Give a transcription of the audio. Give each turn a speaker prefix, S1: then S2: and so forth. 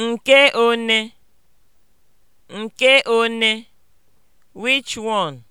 S1: Nke one? Nke one? (Which one?